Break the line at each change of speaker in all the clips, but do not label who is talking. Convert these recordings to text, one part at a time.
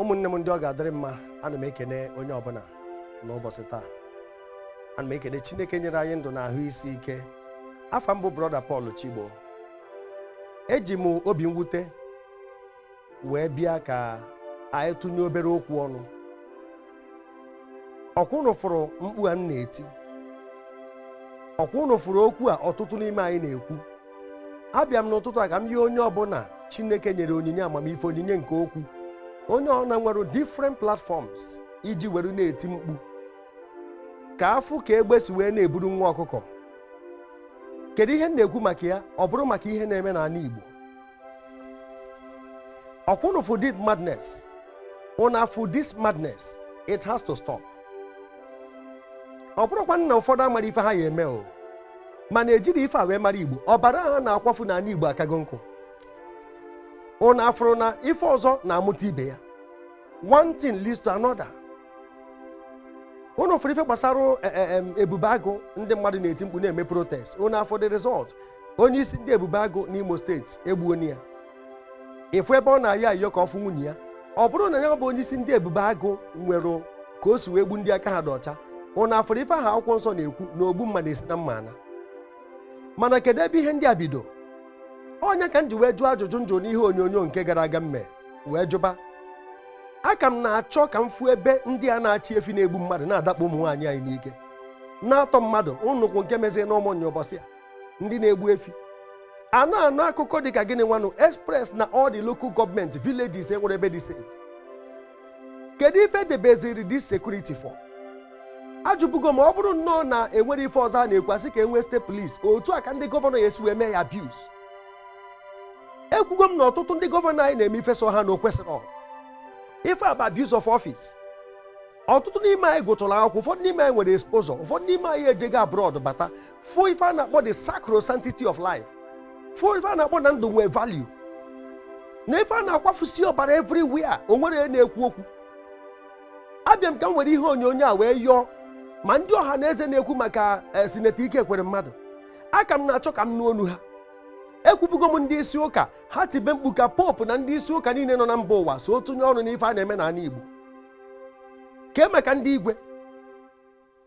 ụmụnne m ndị ọ ga-adịrị mma ana m ekene onye ọbụla n'ụbọchị taa ana m ekene Chineke nyere anyị ndụ na ahụ isi ike afa mbụ brọda Pọl Chigbo eji m obi mwute wee bịa ka anyị tụnye obere okwu ọnụ ọkwụnụ fụrụ mkpu a m na-eti ọkwụnụ fụrụ okwu a ọtụtụ n'ime anyị na-ekwu abịa m n'ụtụtụ a ka m yie onye ọbụla Chineke nyere onyinye amamife onyinye nke okwu onye ọ na nwere different platforms iji were na-eti mkpu ka afụ ka si wee na-eburu nwa ọkụkọ kedu ihe m na-ekwu maka ya ọ bụrụ maka ihe na-eme na n'ala Igbo ọkwụnụ for this madness madness it has to stop ọ bụrụkwa na ụfọdụ amara ife ha ya eme o mana ejiri ife a wee mara Igbo ọbara ha na-akwafu n'ala Igbo akago nkụ ụna afụrụ na ife ọzọ na-amụta ibe ya one thing leads to another ụnụ fụrụ ife gbasara eh, eh, ebube agụ ndị mmadụ na-eti mkpu na-eme protest ụnụ afọ dị result onye isi ndị ebube agụ n'Imo steeti egbuoni ya ịfụ ebe ọ na-ayọ ayọ ka ọ fụ nwunye ya ọ bụrụ na ya bụ onye isi ndị ebube agụ nwere ka o si wee gbu ndị aka ha dị ọcha ụnụ afụrụ ife aha akwụkwọ nsọ na-ekwu na ogbu mma na-esi na mma ana mana kedu ebe ihe ndị a bido onye ka m ji wee jụọ ajụjụ njụ n'ihe onyonyo nke gara aga mme wee jụba a ka m na-achọ ka m fuo ebe ndị a na-achị efi na-egbu mmadụ na-adakpọ ụmụ nwaanyị anyị n'ike na-atọ mmadụ nnukwu nke mezie na ụbọchị a ndị na-egbu efi anụ anụ akụkọ dị ka gịnị nwanụ express na ọ dị local government villages enwere ebe dị safe kedu ife debeziri this security for ajụbugo ma ọ bụrụ nnọọ na enwere ife ọzọ a na-ekwu asị ka enwee state police otu a ka ndị gọvanọ ya esi wee mee ya abuse ekwugo m na ọtụtụ ndị gọvanọ anyị na-eme ife so ha na okwesịrị kwesịrị ife aba abuse of office ọtụtụ n'ime anyị gụtụrụ akwụkwọ ụfọdụ n'ime anyị nwere exposure ụfọdụ n'ime anyị ejego abroad bata fụ ife a na-akpọ the sacrosanctity of life fụ ife a na-akpọ na ndụ nwee value na ife a na-akwafusi ọbara everywhere o nwere na-ekwu okwu abịa ka m nwere ihe onyonyo a wee yọọ ma ndị ọha na eze na-ekwu maka eh, sineti ike kwere mmadụ aka m na-achọ ka m nụ olu ha ekwubugo m ndị isi ụka ha tibe mkpu ka popu na ndị isi ụka niile nọ na mba ụwa so tụnye ọnụ n'ife a na-eme n'ala Igbo ka emeka ndị igwe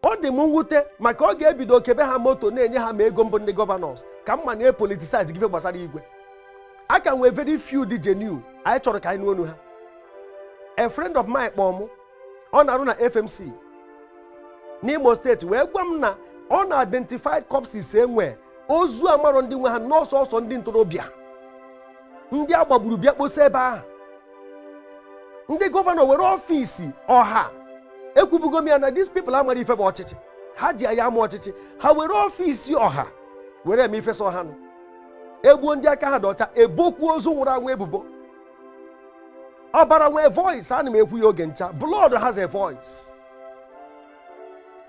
ọ dị m mwute maka ọ ga-ebido kebe ha moto na-enye ha ma ego mbụ ndị gọvanọs ka mma na epolitisize gị gbasara igwe a ka nwee very few dị genuine anyị chọrọ ka anyị onu ha a frend of mine kpọọ ọ na-arụ na FMC n'Imo steeti wee gwa m na ọ na-identified corpses enwee ozu amarọ ndị nwe ha n'ọsọsọ ndị ntorobịa ndị a gbagburu bịa kposa ebe ahụ ndị gọvanọ were ọfiisi ọha ekwubugo m ya na dis pipụl amara ife bụ ọchịchị ha ji ya ama ọchịchị ha were ọfiisi ọha were eme ifesa ọhanụ egbuo ndị aka ha dị ọcha ebokwuo ozu nwụrụ anwụ ebubo ọbara nwee voice ana m ekwu ya oge ncha blood has a voice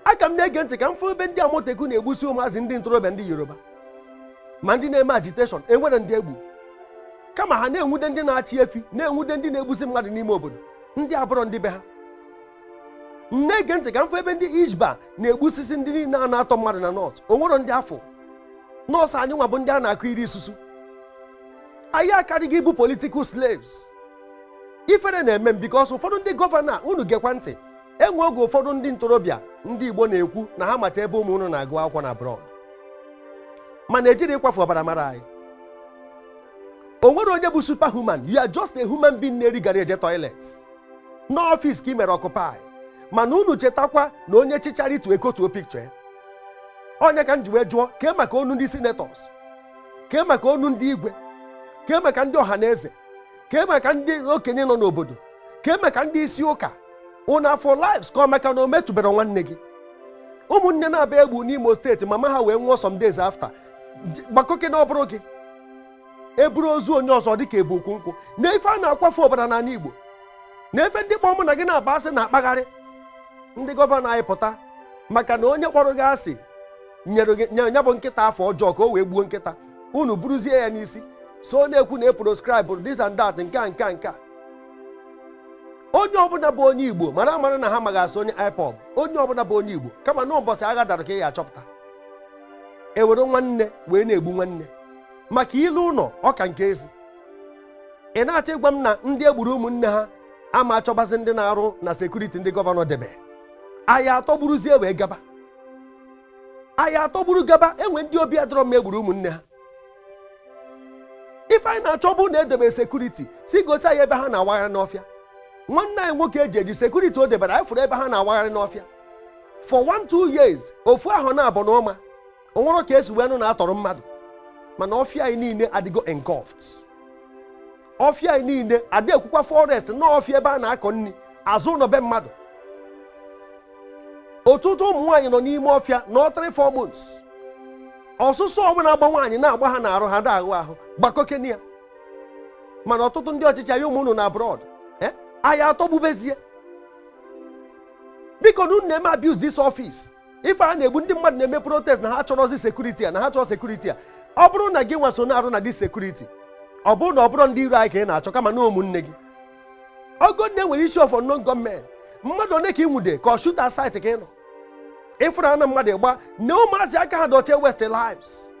aka m na-ege ntị ka m fụ ebe ndị amoteku na-egbusi ụmụazị ndị ntorobịa ndị yoruba ma ndị na-eme agiteshọn enwere ndị egbu kama ha na-enwude ndị na-achị efi na-enwude ndị na-egbusi mmadụ n'ime obodo ndị abụrọ ndị be ha nne ge ntị ka mfe ebe ndị Ishba na-egbusisi ndị niile a na-atọ mmadụ na nọt onwero ndị afọ nọọsụ anyị nwa bụ ndị a na-akụ iri isusu anyị akarịghị ịbụ politikal slaves ifere na-eme m because ụfọdụ ndị gọvanọ unu gekwa ntị enwe oge ụfọdụ ndị ntorobịa ndị Igbo na-ekwu na ha macha ebe ụmụ unu na-agụ akwụkwọ na abroad mana ejiri ịkwafu ọbara mara anyị o nwere onye bụ human you are just a human being na eri gara eje toilet n'ọfịs ka ị mere ọkụpai mana unu chetakwa na onye chichara itu ekotuo picture onye ka m ji wee jụọ kee maka onu ndị senators kee maka onu ndị igwe kee maka ndị ọha na eze kee maka ndị okenye nọ n'obodo kee maka ndị isi ụka unu afọ lives ka maka na o metụbara nwanne gị ụmụnne na abịa egbu n'Imo steeti mama ha wee nwụọ some days after gbakoke na ọbụrụ gị eburu ozu onye ọzọ dịka ebu okwu nkwụ na ife a na-akwafe ọbara n'ala Igbo na ndị kpọọ mụ na gị na-akpa asị na-akpagharị ndị gọvanọ anyị pụta maka na onye kpọrọ gị asị nyere bụ nkịta afọ ọjọọ ka o wee gbuo nkịta unu buruzie ya n'isi so na-ekwu na eproscribe this and that nke a nke a nke a onye ọbụla bụ onye Igbo mara amara na ha magasị onye IPOB onye ọbụla bụ onye Igbo kama na ụbọchị agha dara ka ị ya achọpụta ewere nwanne wee na-egbu nwanne maka ilu ụlọ ọka nke ezi ị na-achọ ịgwa m na ndị egburu ụmụnne ha ama achọbazi ndị na-arụ na sekuriti ndị gọvanọ debe aya atọgburuzie wee gaba aya atọgburu gaba enwe ndị obi adọrọ m egburu ụmụnne ha ife anyị na-achọ bụ na edebe sekuriti si gosi anyị ebe ha na-awagharị n'ọfịa nwanne anyị nwoke e eji eji sekuriti o debere anyị fụrụ ebe ha na-awagharị n'ọfịa for one two years ofu ahụ na-abụ n'ọma. nwere ka esi wee nụ na atọrọ mmadụ mana ọfịa anyị niile adịgo engulfed ọfịa anyị niile adị ekwukwa forest na ọfịa ebe a na-akọ nri azụ ụlọ be mmadụ ọtụtụ ụmụ nwaanyị nọ n'ime ọfịa na four months ọsụsọ ọbụla agba nwaanyị na-agba ha n'arụ ha da-ahụ ahụ ya mana ọtụtụ ndị ọchịchị anyị ụmụ unu na abroad eh, ahịa atọgbubezie biko na unu na-eme abuse dis office ife a na-egbu ndị mmadụ na-eme protest na ha chọrọzi sekuriti a na ha chọrọ sekuriti a ọ bụrụ na gị nwa na-arụ na dis sekuriti ọ bụrụ na ọ bụrụ ndị iro anyị ka ị na-achọ kama na ụmụnne gị ogo nne nwere isi ọfọ non gọọmenti mmadụ one ka ị nwude ka ọ shuta saịtị ka ị nọ ịfụrụ na mmadụ gba na ụmụazị aka ha dochie west lives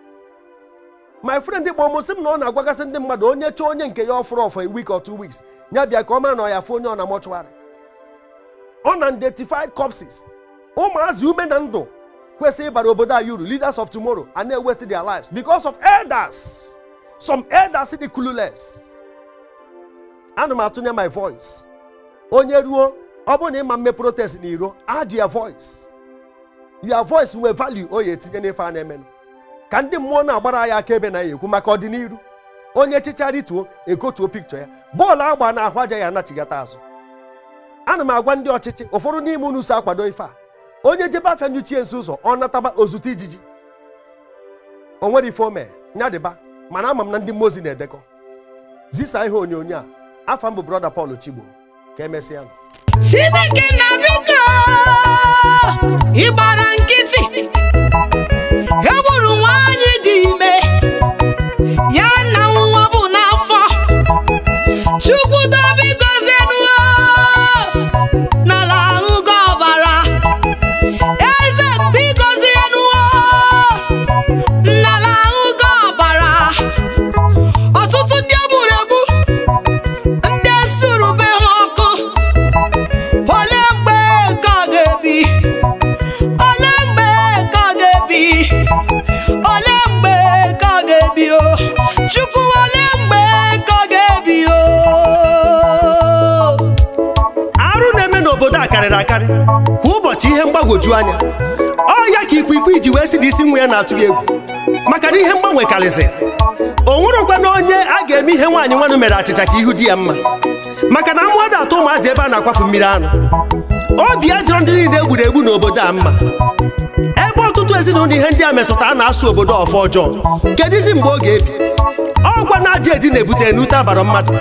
my friend kpọọ m m na ọ na-agwagasị ndị mmadụ onye chọọ onye nke ya ọfụrụ ọfọ a week or two weeks ya bịa ka ọ mara na ọ ya fụ onye ọ na mọchụarị ọ na unidentified ụmụazị ume na ndụ kwesịrị ịbara obodo anyị uru leaders of tomorrow and na waste their lives because of elders some elders dị clueless ana m atụnye my voice onye ruo ọ bụrụ na ịma mme protest na iro add your voice your voice nwee value o ya etinye n'ife a na-emenụ ka ndị mmụọ na-agbara ya akaebe na ya ekwu maka ọdịnihu onye chicha rituo ekotuo pikchọ ya bọọlụ agba na ahụ aja ya anachigata azụ ana m agwa ndị ọchịchị ụfọdụ n'ime unu si akwado ife a onye jebe afịa nyochie nso ụzọ ọ nataba ozute ijiji onwere nwere ife ome nya dịba mana ama m na ndị mmozi na-edekọ zisa ihe onyonyo a afa mbụ brọda Paul Chigbo ka emesịa Chineke na ịgbara nkịtị mgbagwoju anya ọ ya ka ikwikwii Iji wee si na isi nwa ya na-atụ ya egwu maka na ihe mgbanwe karịzị o nwerekwa na onye a ga-eme ihe nwaanyị nwanụ mere achịcha ka ihu di ya mma maka na mmụọ na-atụ ụmụazị ebe a na-akwafu mmiri anụ obi adịrọ ndị niile egwuregwu na obodo a mma ebe ọtụtụ ezinụlọ ihe ndị a metụta a na-asụ obodo ọfọ ọjọọ kedụzi mgbe ọ ga-ebi ọgwa na aja edi na-ebute n'ute abara mmadụ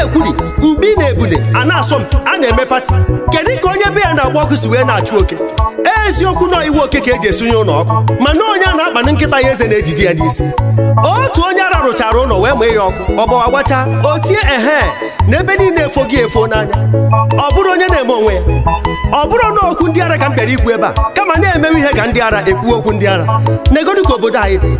na-ekwuri mgbe ị na-ebude a na-asọ m a na-eme pati kedu ka onye be ya na-agba ọkụ si wee na-achụ oke eziokwu na iwu oke ka eji esonye ụlọ ọkụ mana onye a na-akpana nkịta ya eze na-ejide ya n'isi otu onye ara rụchara ụlọ wee mee ya ọkụ ọgbawa gbachaa o tie ehe na ebe niile efo gị efo n'anya ọ bụrụ onye na-eme onwe ya ọ bụrụ na okwu ndị ara ka m bịara ikwu ebe a kama na-emewe ihe ka ndị ara ekwu okwu ndị ara na egodi ka obodo anyị dị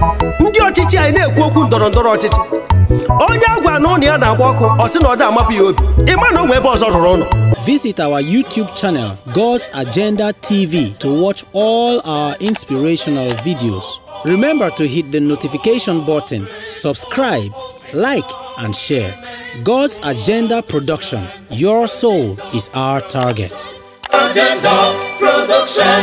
ndị ọchịchị anyị na-ekwu okwu ndọrọ ndọrọ ọchịchị onye agwa na ụnụ ya na-agba ọkụ ọ sị na ọ dị amapụ ya obi ịma na onwe ebe ọzọ rụrụ ụlọ Visit our YouTube channel, God's Agenda TV, to watch all our inspirational videos. Remember to hit the notification button, subscribe, like, and share. God's Agenda Production. Your soul is our target. Agenda Production.